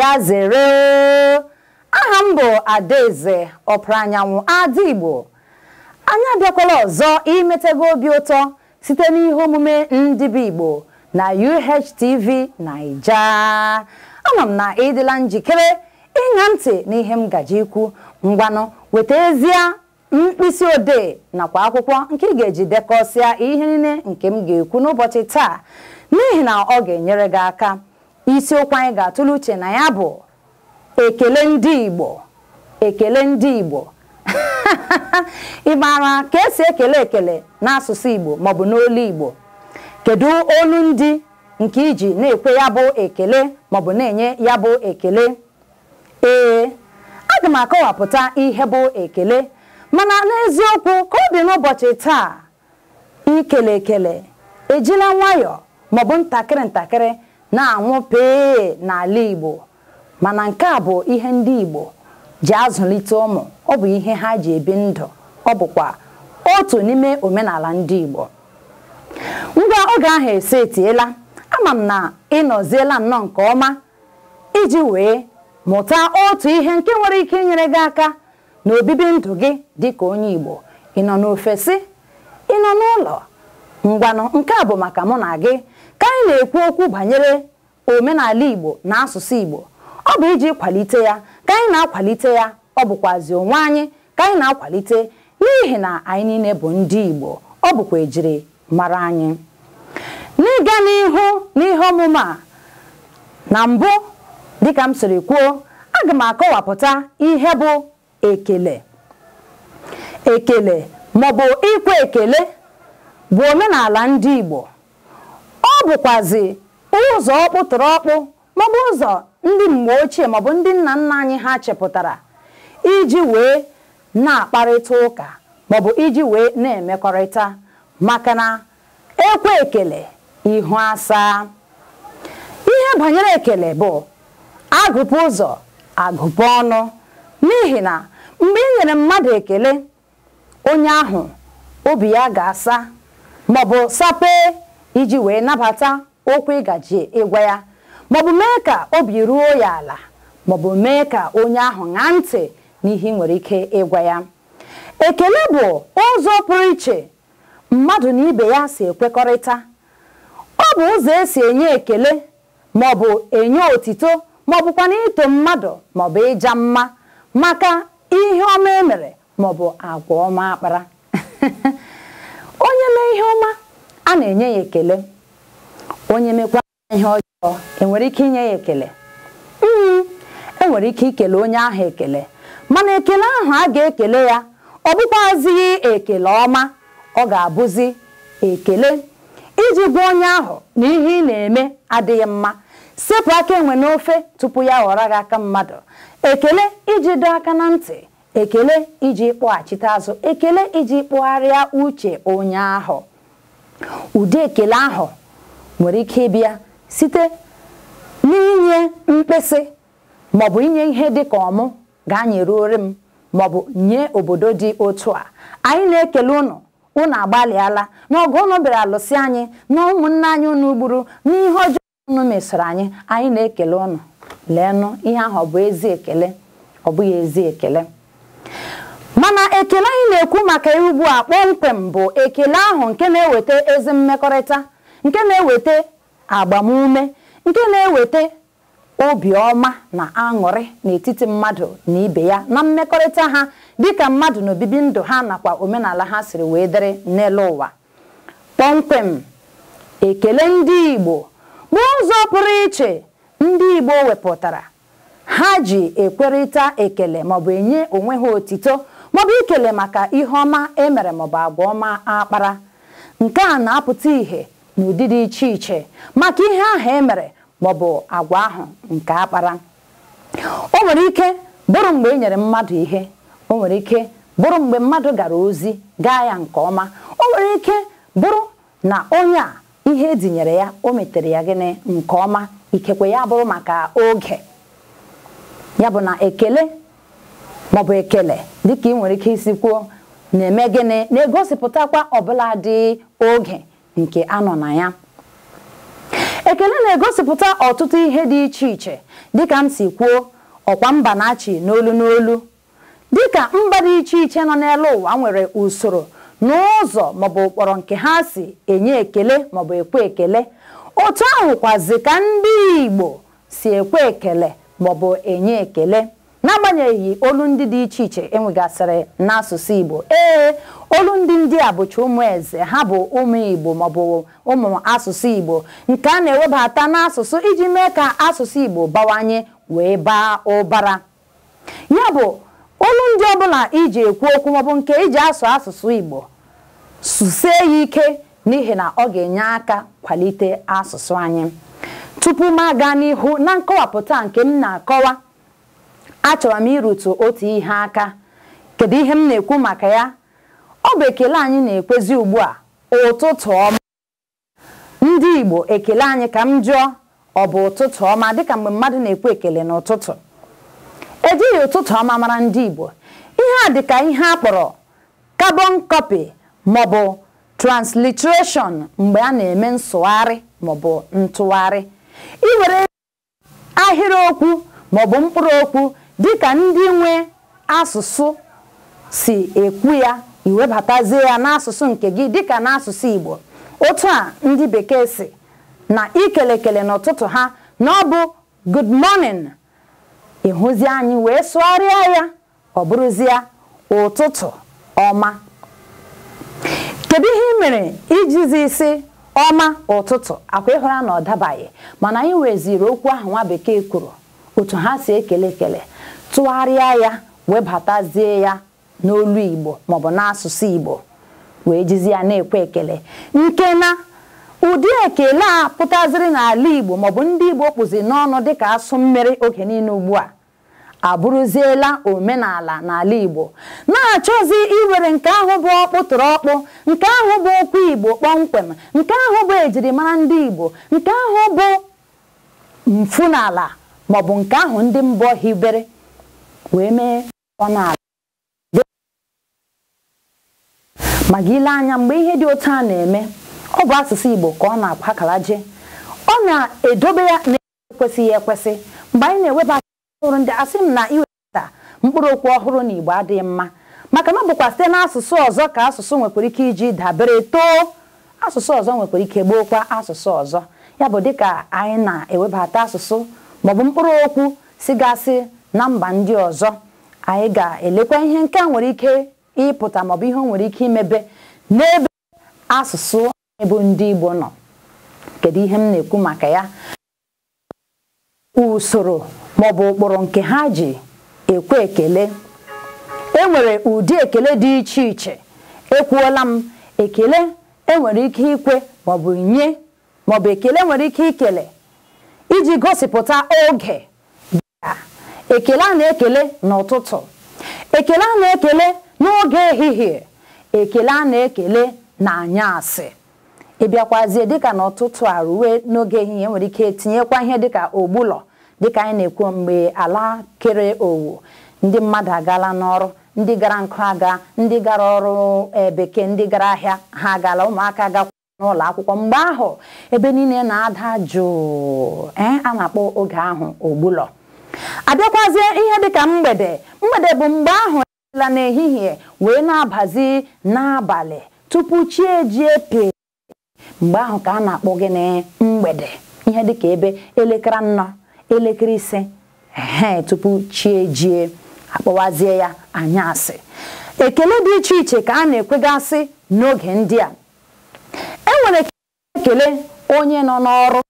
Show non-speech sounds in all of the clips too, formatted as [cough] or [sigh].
ya zere aha m bụ adaeze ọpụrụ anyanwụ ada igbo anyị abịakwala ọzọ imetego obi ụtọ site n'ihe omume ndị bụ igbo na UHTV naija ama m na ịdịla njikere ịṅa ntị n'ihe m gaji ikwu ngwanụ weta ezie mkpịsị odee nakwa akwụkwọ nke ị ga-eji dekọsịa ihe niile nke m ga-ekwu n'ụbọchị taa n'ihi na ọ ga-enyere gị aka isiokwu anyị ga-atụle uche na ya bụ ekele ndị Igbo ekele ndị Igbo [laughs] ị maara ka esi ekele ekele n'asụsụ Igbo maọbụ n'olu Igbo kedu olu ndị nke iji na-ekwe ya bụ ekele maọbụ na-enye ya bụ ekele ee aga m akọwapụta ihe bụ ekele mana n'eziokwu ka ọ dị n'ụbọchị taa ikele ekele ejila nwayọọ maọbụ ntakịrị ntakịrị na anwụ pee n'ala Igbo mana nke a bụ ihe ndị Igbo ji azụlite ụmụ ọ bụ ihe ha ji ebi ndụ ọ bụkwa otu n'ime omenala ndị Igbo ngwa oge ahụ etiela, ama m na ịnọziela nnọọ nke ọma iji wee mụta otu ihe nke nwere ike inyere gị aka na obibi ndụ gị dịka onye Igbo ị nọ n'ofesi ị nọ n'ụlọ ngwanụ nke a bụ maka mụ na gị ka anyị na-ekwu okwu banyere omenala Igbo na asụsụ Igbo ọ bụ iji kwalite ya ka anyị na-akwalite ya ọ bụkwazi onwe anyị ka anyị na-akwalite n'ihi na anyị niile bụ ndị Igbo ọ bụkwa ejiri mara anyị n'ịga n'ihu n'ihe ọmụma a na mbụ dịka m siri kwuo aga m akọwapụta ihe bụ ekele ekele maọbụ ikwe ekele bụ omenala ndị Igbo ọ bụkwazi ụzọ ọkpụtụrụ ọkpụ maọbụ ụzọ ndị mgbe ochie maọbụ ndị nna nna anyị ha chepụtara iji wee na-akparịta ụka maọbụ iji wee na-emekọrịta maka na ekwe ekele ihu asaa ihe banyere ekele bụ agụpụ ụzọ agụpụ ọnụ n'ihi na mgbe ị nyere mmadụ ekele onye ahụ obi ya ga-asa maọbụ sapee iji wee nabata okwu ịgaji ịgwa ya maọbụ mee ka obi ruo ya ala maọbụ mee ka onye ahụ ṅaa ntị n'ihe nwere ike ịgwa ya ekele bụ ụzọ pụrụ iche mmadụ na ibe ya si ekwekọrịta ọ bụ ụzọ esi enye ekele maọbụ enye otito maọbụkwa na ito mmadụ maọbụ ịja mma maka ihe ọma emere maọbụ agwa ọma akpara [laughs] onye mee ihe ọma a na-enye ya ekele onye mekwa ihe ọjọọ enwere ike inye ya ekele hmm, enwere ike ikele onye ahụ ekele mana ekele ahụ a ga-ekele ya ọ bụkwazighị ekele ọma ọ ga-abụzi ekele iji gwa onye ahụ na ihe ị na-eme adịghị mma sepụ aka enwe n'ofe tupu ya ghọrọ gị aka mmadụ ekele iji dọ aka na ntị ekele iji kpọghachite azụ ekele iji kpụgharịa uche onye ahụ ụdị ekele ahụ nwere ike ịbịa site n'inye mkpịsị maọbụ inye ihe dịka ọmụ ga anyeruori m maọbụ nye obodo dị otu a anyị na-ekele ụnụ ụnụ agbalịala n'ọgụ ụnụ bịara alụsị anyị na ụmụnne anyị ụnụ gburu n'ihe ọjọọ ụnụ mesoro anyị anyị na-ekele ụnụ leenụ ihe ahụ ọ bụ ezi ekele ọ bụghị ezi ekele mana ekele anyị na-ekwu maka ya ugbu a kpọmkwem bụ ekele ahụ nke na-eweta ezi mmekọrịta nke na-eweta agbamume nke na-eweta obiọma na aṅụrị n'etiti mmadụ na ibe ya na mmekọrịta ha dịka mmadụ na obibi ndụ ha nakwa omenala ha siri wee dịrị n'elu ụwa kpọmkwem ekele ndị Igbo bụ ụzọ pụrụ iche ndị Igbo wepụtara ha ji ekwerịta ekele maọbụ enye onwe ha otito maọbụ ikele maka ihe ọma emere maọbụ agwa ọma akpara nke a na-apụta ihe n'ụdị dị iche iche maka ihe ahụ emere maọbụ agwa ahụ nke akpara o nwere ike bụrụ mgbe e nyere mmadụ ihe o nwere ike bụrụ mgbe mmadụ gara ozi gaa ya nke ọma o nwere ike bụrụ na onye a ihe edinyere ya o metere ya gịnị nke ọma ikekwe ya bụrụ maka oge ya bụ na ekele maọbụ ekele dịka ị nwere ike isi kwuo na-eme gịnị na-egosipụtakwa ọbụla dị oge nke anọ na ya ekele na-egosipụta ọtụtụ ihe dị iche iche dịka m si kwuo ọkwa mba na-achị n'olu n'olu dịka mba dị iche iche nọ n'elu ụwa nwere usoro n'ụzọ maọbụ ụkpọrọ nke ha si enye ekele maọbụ ekwe ekele otu ahụkwazi ka ndị Igbo si ekwe ekele maọbụ enye ekele n'agbanyeghị olu ndị dị iche iche enwegasịrị n'asụsụ Igbo ee olu ndị ndị a bụcha ụmụ eze ha bụ ụmụ Igbo maọbụ ụmụ asụsụ Igbo nke a na-ewebata n'asụsụ iji mee ka asụsụ Igbo bawanye wee baa ụbara ya bụ olu ndị ọbụla iji ekwu okwu maọbụ nke iji asụ asụsụ Igbo susie ya ike n'ihi na ọ ga-enye aka kwalite asụsụ anyị tupu m aga n'ihu na nkọwapụta nke m na-akọwa achọrọ m irutu otu ihe aka kedu ihe m na-ekwu maka ya ọ bụ ekele anyị na-ekwezi ugbu a ụtụtụ ọma ndị Igbo ekele anyị ka m jụọ ọ bụ ụtụtụ ọma dịka mgbe mmadụ na-ekwu ekele n'ụtụtụ ejighị ụtụtụ ọma mara ndị Igbo ihe a dịka ihe a kpọrọ carbon copy maọbụ transliteration mgbe a na-eme nsụgharị maọbụ ntụgharị iwere ahịrịokwu maọbụ mkpụrụ okwu dịka ndị nwe asụsụ si ekwu ya iwebatazie ya n'asụsụ nke gị dịka n'asụsụ Igbo otu a ndị bekee si na ikelekele kele n'ụtụtụ ha na ọ bụ good morning ịhụzi anyị wee sụgharịa ya ọ bụrụzie ụtụtụ ọma kedu ihe ị mere ijizi isi ọma ụtụtụ akwa ịhụra na ọ dabaghị mana anyị weziri okwu ahụ nwa bekee kwuru otu ha si ekele ekele tụgharịa ya webatazie ya n'olu Igbo maọbụ n'asụsụ Igbo wee jizi ya na-ekwe ekele nke na ụdị ekele a pụtaziri n'ala Igbo maọbụ ndị Igbo kpụzi n'ọnụ dịka asụ mmiri oge niile ugbu a abụrụziela omenala n'ala Igbo na-achọzi iwere nke ahụ bụ ọkpụtụrụ ọkpụ nke ahụ bụ okwu Igbo kpọmkwem nke ahụ bụ ejirimara ndị Igbo nke ahụ bụ mfu n'ala maọbụ nke ahụ ndị mbọ hibere wee mee ọnụ ala ma gị ile anya mgbe ihe dị otu a na-eme ọ bụ asụsụ Igbo ka ọ na-agbakala je ọ na-edobe ya na-ekwesịghị ekwesị mgbe anyị na-eweba ọhụrụ ndị asị m na iwepụta mkpụrụ okwu ọhụrụ na Igbo adịghị mma maka na ọ bụkwa site n'asụsụ ọzọ ka asụsụ nwekwara ike iji dabere too asụsụ ọzọ nwekwara ike gbookwa asụsụ ọzọ ya bụ dịka anyị na-ewebata asụsụ maọbụ mkpụrụ okwu sigasị na mba ndị ọzọ anyị ga-elekwa ihe nke a nwere ike ịpụta maọbụ ihe nwere ike imebe n'ebe asụsụ anyị ndị Igbo nọ kedu ihe m na-ekwu maka ya usoro maọbụ ụkpụrụ nke ha ji ekwe ekele e nwere ụdị ekele dị iche iche ekwuola m ekele enwere ike ikwe maọbụ nye maọbụ ekele nwere ike ikele iji gosipụta oge dịka ekele a na-ekele n'ụtụtụ ekele a na-ekele n'oge ehihie ekele a na-ekele na anyasị ịbịakwazie dịka n'ụtụtụ a ruwe n'oge ehihie nwere ike tinyekwa ihe dịka ogbulọ dịka anyị na-ekwu mgbe ala kere owu ndị mmadụ agaala n'ọrụ ndị gara nkụ aga ndị gara ọrụ e, bekee ndị gara ahịa ha agala ụmụaka gakwa n'ụlọ akwụkwọ mgbe ahụ ebe niile na-ada jụụ eh, a na-akpọ oge ahụ ogbulọ abịakwazie ihe dịka mgbede mgbede bụ mgbe ahụ eela n'ehihie wee na-abazi n'abalị tupu chi ejie pee mgbe ahụ ka a na-akpọ na mgbede ihe dịka ebe elekere anọ elekere ise ehe tupu chi ejie akpọwazie ya anya asị. ekele dị iche iche ka a na-ekwegasị n'oge ndị a e ekele onye nọ n'ọrụ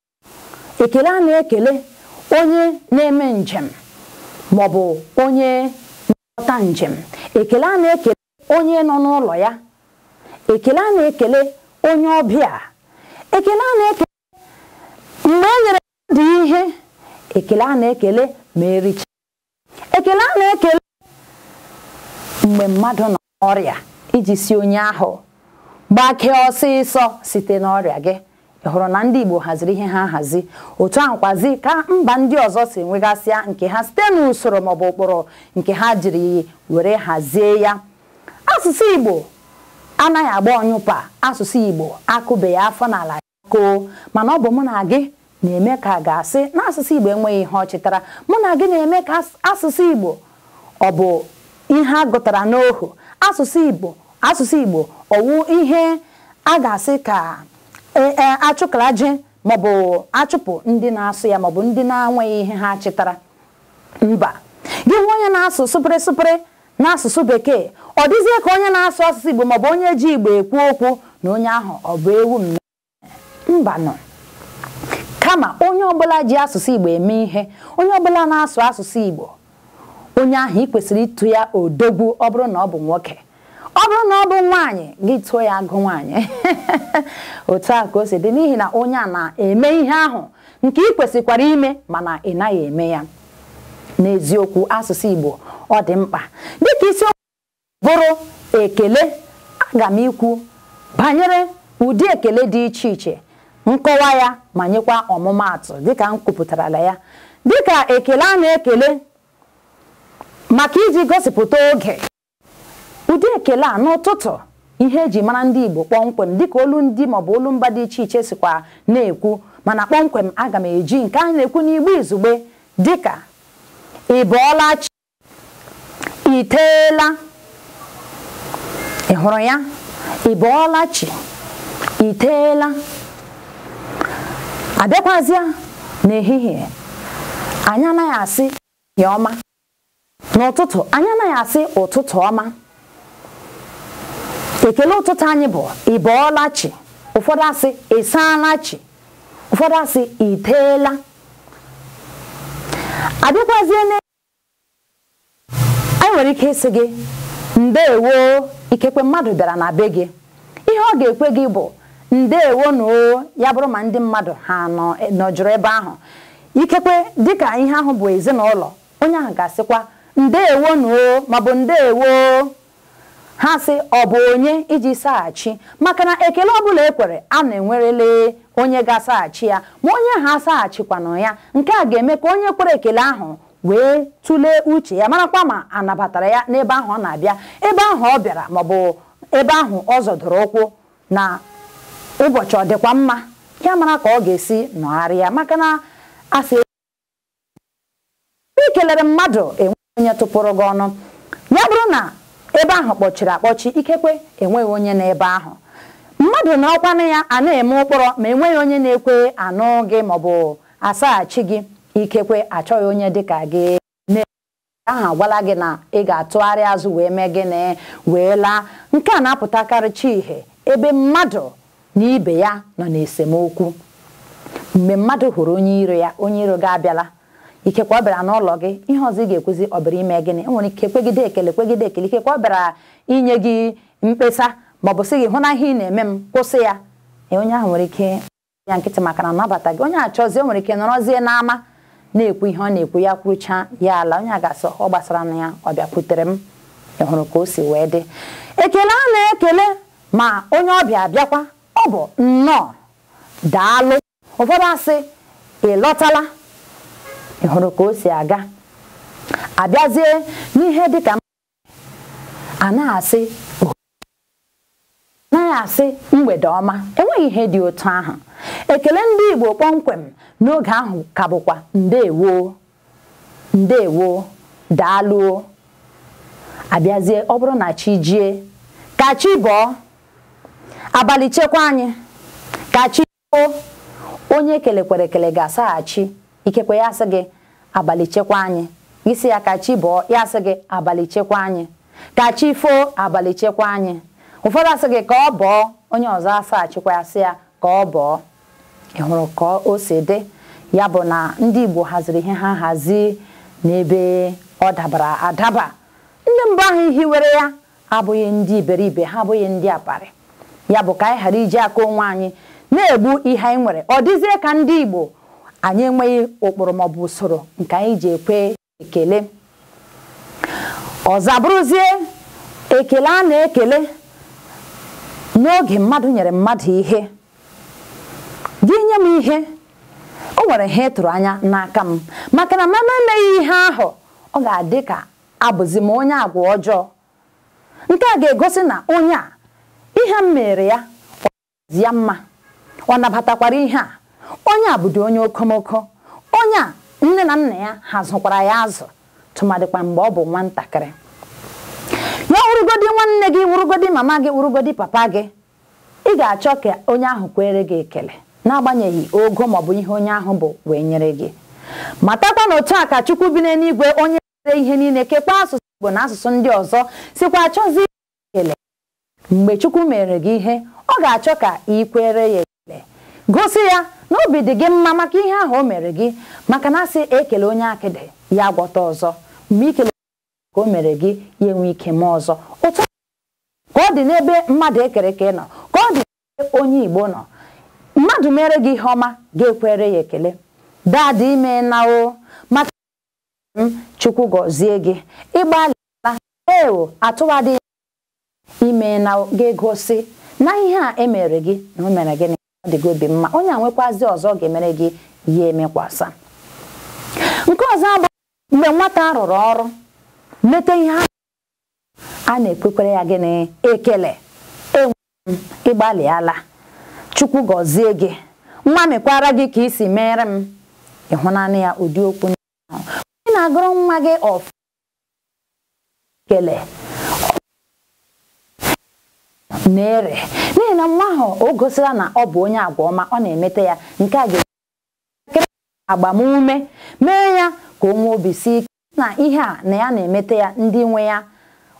ekele a na-ekele onye na-eme njem ma ọ bụ onye na njem ekele a na-ekele onye nọ n'ụlọ ya ekele a na-ekele onye ọbịa ekele a na-ekele mgbe e nyere dị ihe ekele a na-ekele ma ericha ekele a na-ekele mgbe mmadụ nọ n'ọrịa iji si onye ahụ gbakee ọsịsọ site n'ọrịa gị hụrụ na ndị Igbo haziri ihe ha hazi otu ahụ kwazi ka mba ndị ọzọ si enwegasịa nke ha site n'usoro maọbụ ụkpụrụ nke ha jiri were hazie ya asụsụ Igbo anaghị agba ọnyụpa asụsụ Igbo akụbeghị afọ n'ala koo mana ọ bụ mụ na gị na-eme ka ga-asị na asụsụ Igbo enweghị ihe ọ mụ na gị na-eme ka asụsụ Igbo ọ bụ ihe a gụtara n'ohu asụsụ Igbo asụsụ Igbo ọwụ ihe a ga-asị ka E, e, achụkalaje maọbụ achụpụ ndị na-asụ ya maọbụ ndị na-anweghị ihe ha chịtara mba gị nwe onye na-asụ sụpịrị sụpịrị n'asụsụ bekee ọ dịzie ka onye na-asụ asụsụ igbo maọbụ onye ji igbo ekwu okwu na onye ahụ ọ bụ ewu m mba nọ kama onye ọbụla ji asụsụ igbo eme ihe onye ọbụla na-asụ asụsụ igbo onye ahụ ị kwesịrị ịtụ ya odogwu ọ bụrụ na ọ bụ nwoke bụrụ na ọ bụ nwaanyị gị tụọ ya agụ nwaanyị [laughs] otu a ka o si dị n'ihi na onye a na-eme ihe ahụ nke ị kwesịkwara ime mana ị naghị eme ya n'eziokwu asụsụ Igbo ọ dị mkpa dịka isiokwu bụrụ ekele aga m ikwu banyere ụdị ekele dị iche iche nkọwa ya ma nyekwa ọmụmaatụ dịka m kwupụtarala ya dịka ekele a na-ekele maka iji gosipụta oge ụdị ekele a n'ụtụtụ ihe eji mara ndị Igbo kpọmkwem dịka olu ndị maọbụ olu mba dị iche iche sikwa na-ekwu mana kpọmkwem aga m eji nke a na-ekwu n'igbo izugbe dịka ị bọọla chi iteela ị hụrụ ya ị bọọla chi iteela abịakwazịa n'ehihie anyị anaghị asị ya ọma n'ụtụtụ anyị anaghị asị ụtụtụ ọma ekele ụtụtụ anyị bụ ị bọọla chi ụfọdụ asị ị saala chi ụfọdụ asị ị teela adịkwazie na anyị nwere ike ịsị gị ndeewo ikekwe mmadụ bịara na be gị ihe ọ ga-ekwe gị bụ ndeewo na o ya bụrụ ma ndị mmadụ ha e, nọjụrụ ebe ahụ ikekwe dịka ihe ahụ bụ ezinụlọ onye ahụ ga-asịkwa ndeewo na o ma bụ ndeewo ha sị ọ bụ onye iji saghachi maka na ekele ọbụla ekwere a na-enwerele onye ga-asaghachi ya ma onye ha asaghachikwana ya nke a ga-eme ka onye kwere ekele ahụ wee tụlee uche ya marakwa ma anabatara ya n'ebe ahụ ọ na-abịa ebe ahụ ọ bịara maọbụ ebe ahụ ọ zọdụrụ ụkwụ na ụbọchị ọ dịkwa mma ya mara ka ọ ga-esi nọgharịa maka na asị ikelere mmadụ enweghị onye tụpụrụ gị ọnụ ya bụrụ na ebe ahụ kpọchiri akpọchi ikekwe enweghị onye n'ebe ahụ mmadụ na ọkwanụ ya a na-eme ụkpọrọ ma enweghị onye na-ekwe anụ gị maọbụ asaghachi gị ikekwe achọghị onye dịka gị ahụ agwala gị na ị ga-atụgharị azụ wee mee gịnị wee laa nke a na-apụtakarịcha ihe ebe mmadụ na ibe ya nọ n'esemokwu mgbe mmadụ hụrụ onye iro ya onye iro gị abịala ikekwa ọ bịara n'ụlọ gị ihe ọzọ ị ga-ekwuzi ọ bịara ime gịnị enwere ike kwegide ekele kwegide ekele ikekwa ọ bịara inye gị mkpesa ma ọ bụ sị gị hụ na ihe ị na-eme m kwụsị ya e, onye ahụ nwere ike ya nkịtị maka na nabata gị onye achọzie nwere ike nọrọzie n'ama na-ekwu ihe ọ na-ekwu ya kwụcha ya ala onye a ga asị ọ gbasara na ya ọ bịakwutere m ị hụrụ ka o si wee dị ekele a na-ekele ma onye ọbịa bịakwa ọ bụ nnọọ daalụ ụfọdụ asị ị lọtala ị hụrụ ka o si aga abịazie n'ihe dịka a na-asị na asị mgbede ọma enweghị ihe dị otu ahụ ekele ndị Igbo kpọmkwem n'oge ahụ ka bụkwa ndewo ndewo daalụo abịazie ọ bụrụ na chi jie ka chi bọọ abalị chekwa anyị ka chi onye kelekwara ekele ga-asaghachi ikekwe ya asị gị abalị chekwa anyị isi ya ka chi bọọ ya asị gị abalị chekwa anyị ka chi foo abalị chekwa anyị ụfọdụ asị gị ka ọ bọọ onye ọzọ asa achịkwa ya sị ya ka ọ bọọ ị hụrụ ka o si dị ya bụ na ndị Igbo haziri ihe ha hazi n'ebe ọ dabara adaba ndị mbụ ahụ were ya abụghị ndị iberibe ha abụghị ndị aparị ya bụ ka anyị ghara iji aka onwe anyị na-egbu ihe anyị nwere ọ dịzie ka ndị Igbo anyị enweghị ụkpụrụ maọbụ usoro nke anyị ji ekwe ekele ọzabụrụzie ekele a na-ekele n'oge mmadụ nyere mmadụ ihe gị nye m ihe o nwere ihe ịtụrụ anya n'aka m maka na mama emeghị ihe ahụ ọ ga-adị ka abụzi m onye agwa ọjọọ nke a ga-egosi na onye a ihe m mere ya ọ ya mma ọ nabatakwara ihe a onye a bụdị onye okomoko onye a nne na nna ya ha zụkwara ya azụ tụmadịkwa mgbe ọ bụ nwatakịrị ya wụrụgodi nwanne gị wụrụgodi mama gị wụrụgodi papa gị ị ga-achọ ka onye ahụ kwere gị ekele n'agbanyeghị ogo maọbụ ihe onye ahụ bụ wee nyere gị matakwa na otu a ka chukwu bi n'eluigwe onye nwere ihe niile kekwa asụsụ igbo na asụsụ ndị ọzọ sikwa achọzi ekele mgbe chukwu mere gị ihe ọ ga-achọ ka ị kwere ya ekele gosi ya n'obi dị gị mma maka ihe ahụ o mere gị maka na asị ekele onye akịdị ya agwọta ọzọ mgbe ikele ka o mere gị ya enwe ike mee ọzọ ụtọ ka ọ dị n'ebe mmadụ ekereke nọ ka ọ dị n'ebe onye Igbo nọ mmadụ mere gị ihe ọma ga-ekwere ya ekele dadị ime na o maka m chukwu gọzie gị ịgbalịla ewo atụwadị ime na ga-egosi na ihe a emere gị na o mere gịnị ọ obi mma onye a nwekwazi ọzọ ọ ga-emere gị ya emekwasa nke ọzọ bụ mgbe nwata rụrụ ọrụ mete ihe a na-ekwekwere ya gịnị ekele enwe m ịgbalịala chukwu gọzie gị nwa mekwara gị ka isi mere m ịhụnanya ya ụdị okwu ndị na-agụrụ nwa gị ọfụ ekele na-ere n'ihi na nwa ahụ o gosila na ọ bụ onye agwa ọma ọ na-emete ya nke a ga m agbamume mee ya ka o nwee obi si ike na ihe a na ya na-emete ya ndị nwe ya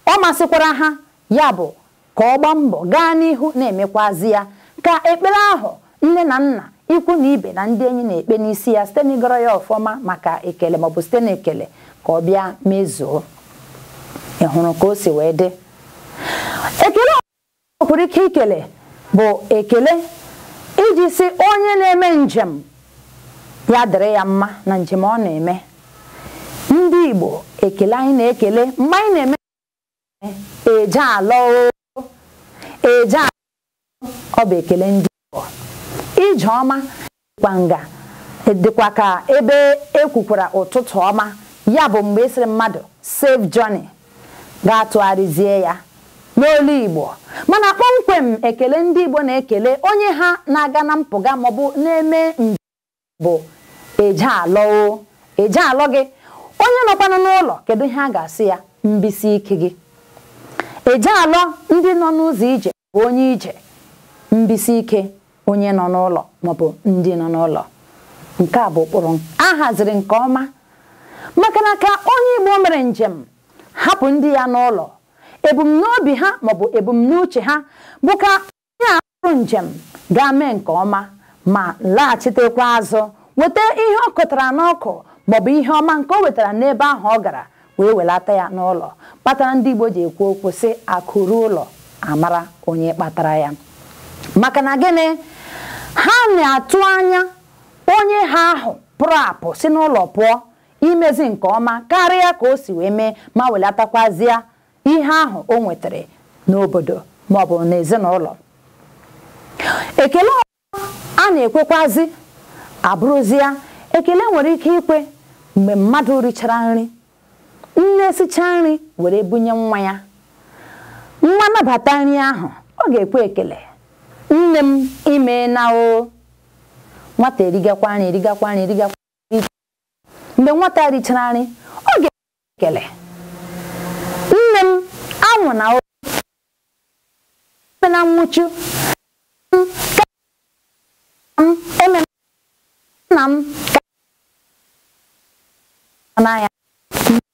ọ masịkwara ha ya bụ ka ọ gbaa mbọ gaa n'ihu na-emekwazi ya ka ekpere ahụ nne na nna ikwu na ibe na ndị enyi na-ekpe n'isi ya site n'ịgọrọ ya ọfọma maka ekele maọbụ site n'ekele ka ọ bịa mezuo ị hụrụ ka o si wee dị ekele o pụrụ ike ikele bụ ekele iji si onye na-eme njem ya dịrị ya mma na njem ọ na-eme ndị Igbo ekele anyị na-ekele mgbe anyị na-eme eje alọ eje ọ bụ ekele ndị Igbo ije ọma dịkwa nga dịkwa ka ebe ekwukwara ụtụtụ ọma ya bụ mgbe ịsịrị e mmadụ save Joni gaa tụgharịzie ya n'olu Igbo mana kpọmkwem ekele ndị Igbo na-ekele onye ha na-aga na mpụga maọbụ na-eme mbe bụ eje alọ gị onye nọkwanụ n'ụlọ kedu ihe a ga-asị ya mbisi ike gị eje alọ ndị nọ n'ụzọ ije bụ onye ije mbisi ike onye nọ n'ụlọ maọbụ ndị nọ n'ụlọ nke a bụ ụkpụrụ a haziri nke ọma maka na ka onye Igbo mere njem hapụ ndị ya n'ụlọ ebumnobi ha maọbụ ebumnuche ha bụka ka onye ahụrụ njem ga mee nke ọma ma laghachitekwa azụ weta ihe ọ kụtara n'ọkụ maọbụ ihe ọma nke o wetara n'ebe ahụ ọ gara wee welata ya n'ụlọ kpatara ndị Igbo ji ekwu okwu sị akụrụ ụlọ amara onye kpatara ya maka na gịnị ha na-atụ anya onye ha ahụ pụrụ apụ si n'ụlọ pụọ imezi nke ọma karịa ka o si wee mee ma welatakwazie ihe ahụ o nwetara n'obodo maọbụ n'ezinụlọ ekele ọzọ a na-ekwekwazi ya. ekele nwere ike ikwe mgbe mmadụ richara nri nne sichaa nri were bunye nwa ya nwa nabata nri ahụ ọ ga-ekwe ekele nne m ime na o nwata erigakwa nri erigakwa nri erigakwa mgbe nwata richara nri ọ ga-ekwe ekele mụ na na nwụchu nna m n'anya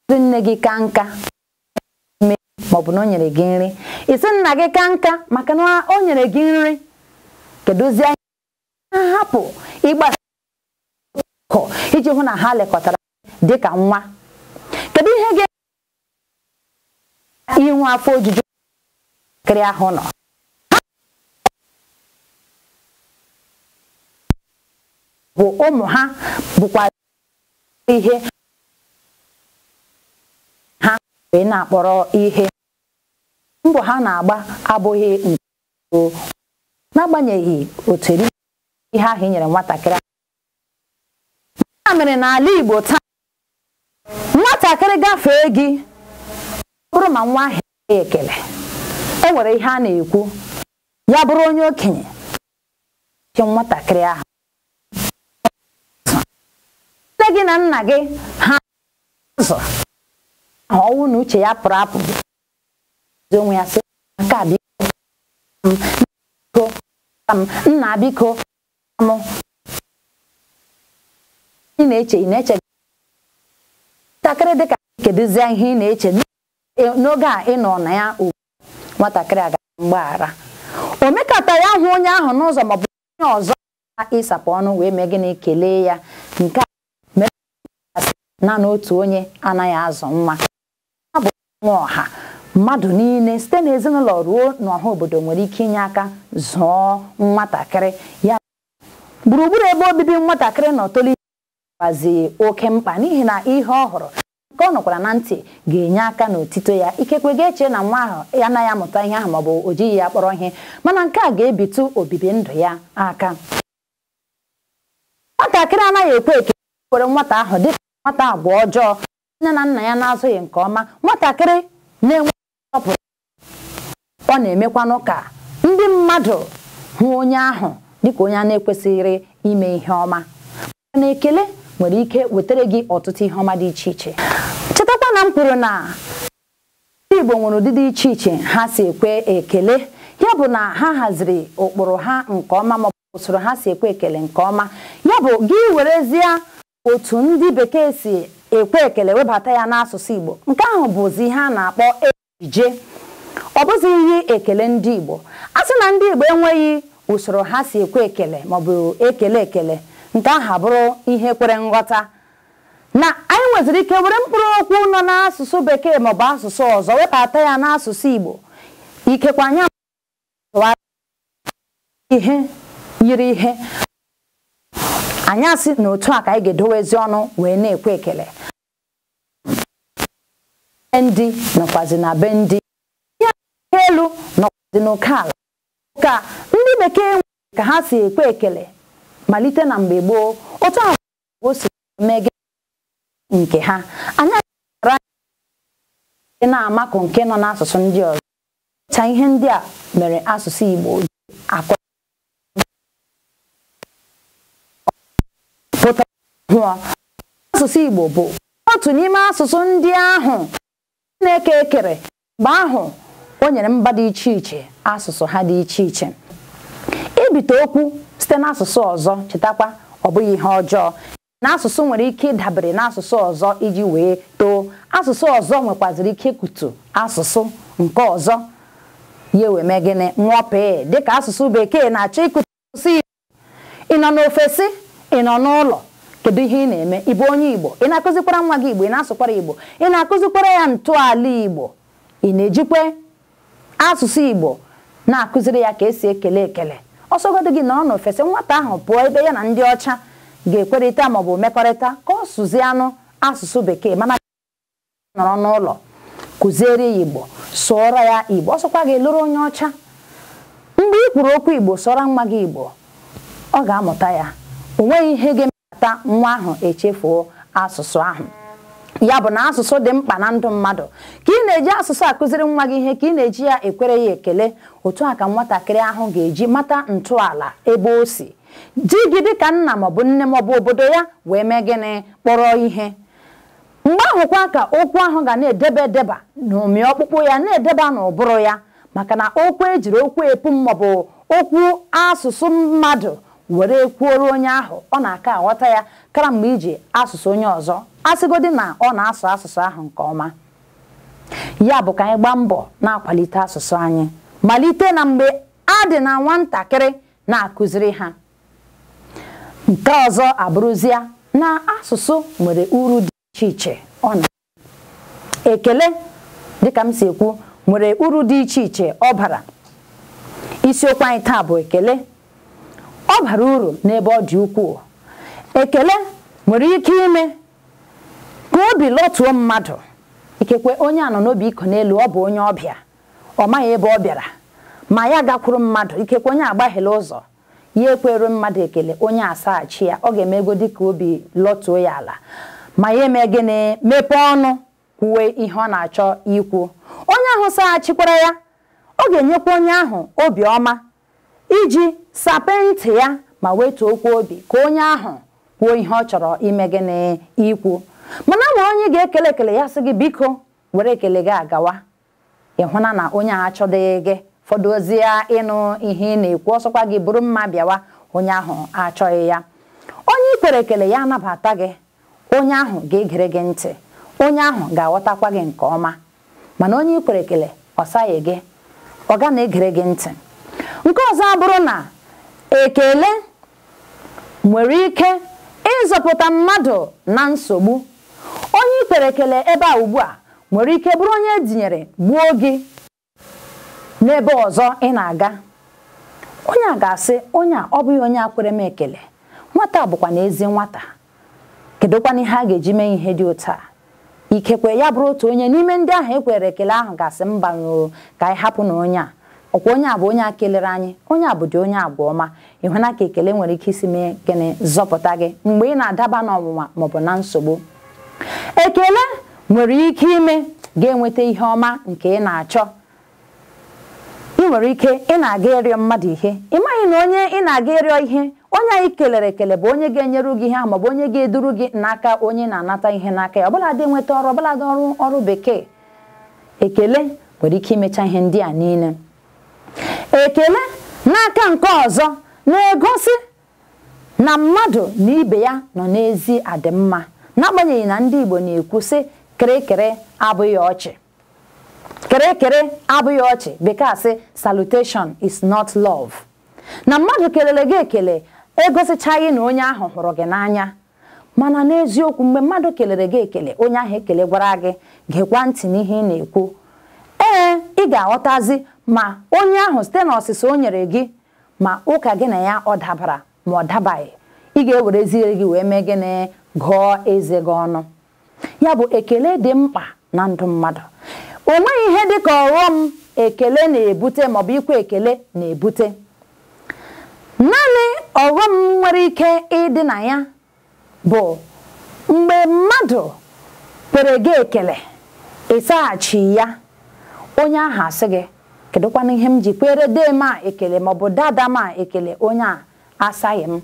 ndị nne gị ka nka maọbụ na o nyere gị nri isi nna gị ka nka maka na o nyere gị nri kedụzie hapụ ịgbasa iji hụ na ha lekọtara dịka nwa kedu ihe ga inwe afọ ojuju kiri ahụ nọ bụ ụmụ ha bụkwa ihe ha wee na-akpọrọ ihe mbọ ha na-agba abụghị nke n'agbanyeghị otu eri ihe ahụ nyere nwatakịrị ya mere n'ala Igbo taa nwatakịrị gafee gị bụrụ ma nwa ahụ ekele o nwere ihe a na-ekwu ya bụrụ onye okenye nke nwatakịrị ahụ nne gị na nna gị ha ụzọ ahụ ọnwụ na uche ya pụrụ apụ onwe ya sị nke a biko nna biko m ị na-eche ị na-eche ntakịrị dịka kedụzie ihe ị na-eche n'oge a ị nọ na ya ugwu nwatakịrị aga mgbaghara omekata ya hụ onye ahụ n'ụzọ maọbụ onye ọzọ ịsapụ ọnụ wee mee gịnị kelee ya nke a mere naanị otu onye anaghị azụ nwa a bụ nwa ọha mmadụ niile site n'ezinụlọ ruo n'ọha obodo nwere ike inye aka zụọ nwatakịrị ya gburugburu ebe obibi nwatakịrị nọ tolite gbazi oke mkpa n'ihi na ihe ọ hụrụ nke ọ nọkwara na ntị ga-enye aka n'otito ya ikekwe ga-eche na nwa ahụ ya anaghị amụta ihe ahụ maọbụ o jighị ya kpọrọ ihe mana nke a ga-ebitu obibi ndụ ya aka nwatakịrị anaghị ekwe eke nwata ahụ dịka nwata agwa ọjọọ nne na nna ya na-azụghị nke ọma nwatakịrị na-enwe nsọpụrụ ọ na-emekwanụ ka ndị mmadụ hụ onye ahụ dịka onye a na-ekwesịrị ime ihe ọma mana ekele nwere ike wetara gị ọtụtụ ihe ọma dị iche iche mana kwuru na ndị Igbo nwere ụdịdị iche iche ha si ekwe ekele ya bụ na ha haziri ụkpụrụ ha nke ọma maọbụ usoro ha si ekwe ekele nke ọma ya bụ gị werezie otu ndị bekee si ekwe ekele webata ya n'asụsụ Igbo nke ahụ bụzi ihe a na-akpọ ejije ọ bụzi ihe ekele ndị Igbo a sị na ndị Igbo enweghị usoro ha si ekwe ekele maọbụ ekele ekele nke ahụ abụrụ ihe kwere nghọta na anyị nweziri ike were mkpụrụ okwu nọ n'asụsụ bekee maọbụ asụsụ ọzọ webata ya n'asụsụ Igbo ikekwe anyị ihe yiri ihe anyasị asị na otu a ka anyị ga-edowezi ọnụ wee na-ekwe ekele ndị nọkwazi na be ndị ya elu nọkwazi n'oke ala ka ndị bekee nwere ka ha si ekwe ekele malite na mgbe gboo otu ahụ o si mege nke ha anaghị na-amakụ nke nọ n'asụsụ ndị ọzọ ta ihe ndị a mere asụsụ Igbo ji asụsụ Igbo bụ otu n'ime asụsụ ndị ahụ na-eke ekere mgbe ahụ o nyere mba dị iche iche asụsụ ha dị iche iche ibite okwu site n'asụsụ ọzọ chetakwa ọ bụghị ihe ọjọọ na asụsụ nwere ike ịdabere n'asụsụ ọzọ iji wee too asụsụ ọzọ nwekwaziri ike ikutu asụsụ nke ọzọ ya wee mee gịnị nwọpee dịka asụsụ bekee na-achọ ikutu asụsụ igbo ị nọ n'ofesi ị nọ n'ụlọ kedu ihe ị na-eme ịbụ onye igbo ị na-akụzikwara nwa gị igbo ị na-asụkwara igbo ị na-akụzikwara ya ntọala igbo ị na ejikwa asụsụ igbo na-akụziri ya ka esi ekele ekele ọsọgodo gị nọrọ n'ofesi nwata ahụ pụọ ebe ya na ndị ọcha ga-ekwerịta maọbụ mmekọrịta ka ọ anụ asụsụ bekee mana nọrọ n'ụlọ kụziere ya igbo sụọra ya igbo ọ sụkwa gị lụrụ onye ọcha mgbe ị kwuru okwu igbo sụọrọ nwa gị igbo ọ ga-amụta ya o nweghị ihe ga-emepụta nwa ahụ echefuo asụsụ ahụ ya bụ na asụsụ dị mkpa na ndụ mmadụ ka ị na-eji asụsụ akụziri nwa gị ihe ka ị na-eji ya ekwere ya ekele otu a ka nwatakịrị ahụ ga-eji mata ntọala ebe o si di gị dịka nna maọbụ nne maọbụ obodo ya wee mee gịnị kpọrọ ihe mgbe ahụkwa ka okwu ahụ ga na-edeba edeba na omi ọkpụkpụ ya na-edeba n'ụbụrụ ya maka na okwu ejiri okwu epu maọbụ okwu asụsụ mmadụ were kwuoro onye ahụ ọ na-aka aghọta ya kara mgbe iji asụsụ onye ọzọ asịgodị na ọ na-asụ asụsụ ahụ nke ọma ya bụ ka anyị gbaa mbọ na-akwalite asụsụ anyị malite na mgbe a dị na nwatakịrị na-akụziri ha nke ọzọ abụrụzie na asụsụ nwere uru dị iche iche ọ na ekele dịka m si ekwu nwere uru dị iche iche ọ bara isiokwu anyị taa bụ ekele ọ bara uru n'ebe ọ dị ukwuu ekele nwere ike ime ka obi lọtuo mmadụ ikekwe onye anọ n'obi iko n'elu ọ bụ onye ọbịa ọ maghị ebe ọ bịara ma ya gakwuru mmadụ ikekwe onye agbaghịla ụzọ ya ekwere mmadụ ekele onye asaghachi ya ọ ga-eme ego dịka obi lọtuo ya ala ma ya eme gịnị mepee ọnụ kwuwe ihe ọ na-achọ ikwu onye ahụ saghachikwara ya ọ ga-enyekwa onye ahụ obi ọma iji ntị ya ma wetuo okwu obi ka onye ahụ kwuo ihe ọ chọrọ ime gịnị ikwu mana ma onye ga-ekele ekele ya sị gị biko were ekele gị agawa ịhụna na onye ahụ achọdịghị gị fọdụzie ịnụ ihe ị na-ekwu ọsọkwa gị bụrụ mma bịawa onye ahụ achọghị ya onye ikwere ekele ya anabata gị onye ahụ ga-egere gị ntị onye ahụ ga-aghọtakwa gị nke ọma mana onye ikwere ekele ọsaghị gị ọ ga na-egere gị ntị nke ọzọ abụrụ na ekele nwere ike ịzọpụta mmadụ na nsogbu onye ikwere ekele ebe a ugbu a nwere ike bụrụ onye etinyere gbuo gị n'ebe ọzọ ị na-aga onye a ga-asị onye a ọ bụghị onye a kwere m ekele nwata bụkwa na ezi nwata kedụkwana ihe a ga-eji mee ihe dị otu a ikekwe ya bụrụ otu onye n'ime ndị ahụ ekwere ekele ahụ ga-asị mbanyoo ka anyị hapụ na onye a ọkwa onye a bụ onye a kelere anyị onye a bụ dị onye agwa ọma ịhụna ka ekele nwere ike isi mee gịnị zọpụta gị mgbe ị na-adaba n'ọnwụnwa maọbụ na nsogbu ekele nwere ike ime ga-enweta ihe ọma nke ị na-achọ nwere ike ị na-aga ịrịọ mmadụ ihe ị maghị na onye ị na-aga ịrịọ ihe onye anyị kelere ekele bụ onye ga-enyeru gị ihe ahụ maọbụ onye ga-eduru gị n'aka onye na-anata ihe n'aka ya ọbụladị nweta ọrụ ọbụladị ọrụ ọrụ bekee ekele nwere ike imecha ihe ndị a niile ekele n'aka nke ọzọ na-egosi na mmadụ na ibe ya nọ n'ezi adịmma n'agbanyeghị na ndị Igbo na-ekwu sị kịrịkịrị abụghị ọchị kere kere abụghị ọchị bekee sị salutation is not love na mmadụ kelele gị ekele egosichaghị na onye ahụ hụrụ gị n'anya mana n'eziokwu mgbe mmadụ kelere gị ekele onye ahụ ekele gwara gị gekwa ntị n'ihe ị na-ekwu ee ị ga-aghọtazi ma onye ahụ site na ọsịsa o nyere gị ma ụka gị na ya ọ dabara ma ọ dabaghị ị ga-ewerezie gị wee mee gịnị gụọ eze gị ọnụ ya bụ ekele dị mkpa na ndụ mmadụ onweghị nweghị ihe ka ọghọm ekele na-ebute maọbụ ikwe ekele na-ebute naanị ọghọm nwere ike ịdị na ya bụ mgbe mmadụ kwere gị ekele ịsaghachi ya onye ahụ asị gị kedụkwana ihe m ji kwere dee m ekele maọbụ dada m ekele onye a asaghị m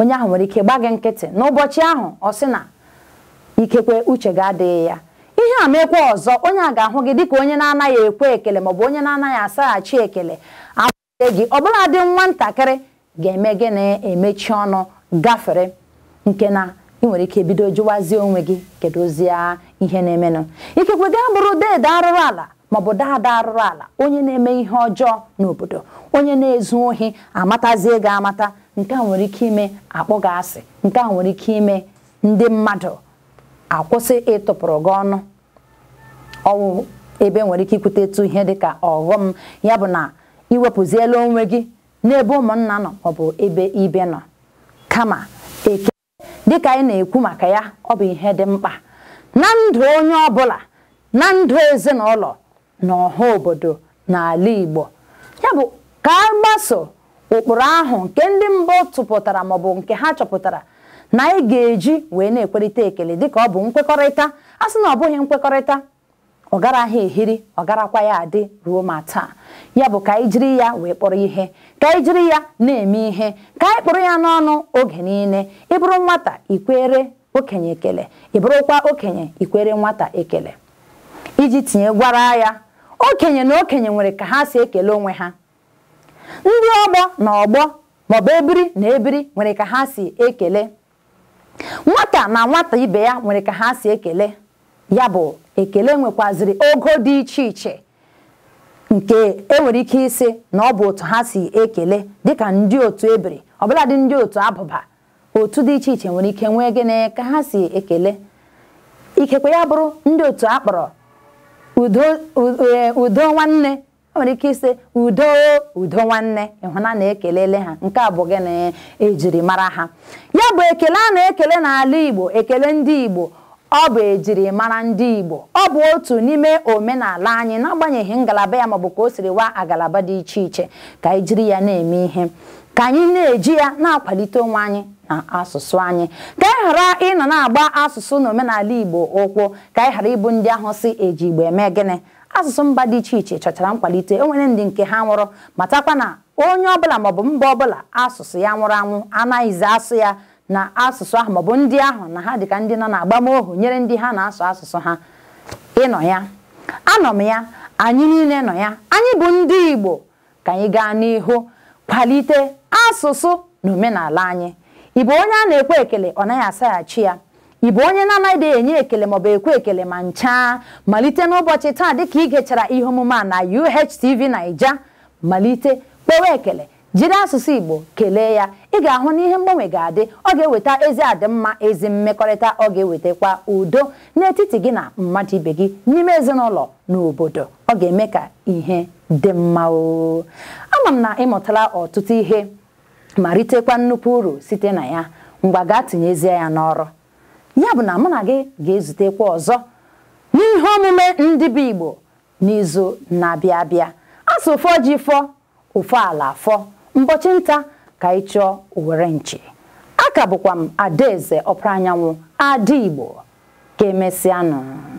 onye ahụ nwere ike gba gị nkịtị n'ụbọchị ahụ ọ sị na ikekwe uche gị adịghị ya ihe a mekwa ọzọ onye a ga-ahụ gị dịka onye na-anaghị ekwe ekele maọbụ onye na-anaghị asaghachi ekele akwụe gị ọbụla dị nwatakịrị ga-eme gị na-emechi ọnụ gafere nke na ị nwere ike bido jụwazie onwe gị kedu ozi ihe na-emenụ ikekwe gaa bụrụ dede arụrụ ala maọbụ daada arụrụ ala onye na-eme ihe ọjọọ n'obodo onye na-ezu ohi amatazie gị amata nke a nwere ike ime akpụ gị asị nke a nwere ike ime ndị mmadụ akwụsị ịtụpụrụ gị ọnụ ọwụ ebe e nwere ike ikwute etu ihe dịka ọghọm ya bụ na iwepụziela onwe gị n'ebe ụmụnna nọ maọbụ ebe ibe nọ kama eke dịka anyị na-ekwu maka ya ọ bụ ihe dị mkpa na ndụ onye ọbụla na ndụ ezinụlọ na ọha obodo n'ala Igbo ya bụ ka a gbaso ụkpụrụ ahụ nke ndị mbụ tụpụtara maọbụ nke ha chọpụtara na anyị ga-eji wee na-ekwerịta ekele dịka ọ bụ nkwekọrịta a sị na ọ bụghị nkwekọrịta ọ garaghị ehiri ọ garakwa ya adị ruo ma taa ya bụ ka anyị jiri ya wee kpọrọ ihe ka anyị jiri ya na-eme ihe ka anyị kpụrụ ya n'ọnụ oge niile ịbụrụ nwata ikwere okenye ekele ịbụrụkwa okenye ikwere nwata ekele iji tinye gwara ya okenye na okenye nwere ka ha si ekele onwe ha ndị ọgbọ na ọgbọ maọbụ ebiri na ebiri nwere ka ha si ekele nwata na nwata ibe ya nwere ka ha si ekele ya bụ ekele nwekwaziri ogo dị iche iche nke enwere ike isi na ọ bụ otu ha si ekele dịka ndị otu ebere ọbụladị ndị otu abụba otu dị iche iche nwere ike nwee gịnị ka ha si ekele ikekwe ya bụrụ ndị otu akpọrọ e, udo nwanne o nwere ike ise udo udo nwanne ịhụna na-ekelele ha nke a bụ gịnị ejiri mara ha ya bụ ekele a na-ekele n'ala Igbo ekele ndị Igbo ọ bụ ejiri mara ndị Igbo ọ bụ otu n'ime omenala anyị n'agbanyeghị ngalaba ya maọbụ ka o siri wa agalaba dị iche iche ka anyị jiri ya na-eme ihe ka anyị na-eji ya na-akwalite onwe anyị na asụsụ anyị ka anyị ghara ịnọ na-agba asụsụ na omenala Igbo ụkwụ ka anyị ghara ịbụ ndị ahụ si eji Igbo eme gịnị asụsụ mba dị iche iche chọchara nkwalite enwere ndị nke ha nwụrụ matakwa na onye ọbụla maọbụ mba ọbụla asụsụ ya nwụrụ anwụ anaghịzi asụ ya na asụsụ ahụ maọbụ ndị ahụ na ha dịka ndị nọ na-agbam agbamohu nyere ndị ha na-asụ asụsụ ha ịnọ ya anọ m ya anyị niile nọ ya anyị bụ ndị Igbo ka anyị gaa n'ihu kwalite asụsụ na omenala anyị ị bụ onye a na-ekwe ekele ọ naghị asaghachi ya ị bụ onye na-anaghị enye ekele maọbụ ekwe ekele ma ncha malite n'ụbọchị taa dịka ị gechara ihe omume a na UHTV Naija malite kpewe ekele jiri asụsụ Igbo kelee ya ị ga-ahụ na ihe mgbanwe ga-adị ọ ga-eweta ezi adịmma ezi mmekọrịta ọ ga-ewetakwa udo n'etiti gị na mmadụ ibe gị n'ime ezinụlọ na obodo ọ ga-eme ka ihe dị mma o ama m na ịmụtala ọtụtụ ihe ma ritekwa nnukwu uru site na ya ngwa gaa tinyezie ya n'ọrụ ya bụ na mụ na gị ga-ezutekwa ọzọ n'ihe omume ndị bụ Igbo n'izu na-abịa abịa asụ fọ ji fọ ụfọ ala fọ mbọchị nta ka ị chọọ owere nche aka bụkwa m adaeze ọpụrụ anyanwụ ada Igbo ka emesịanụ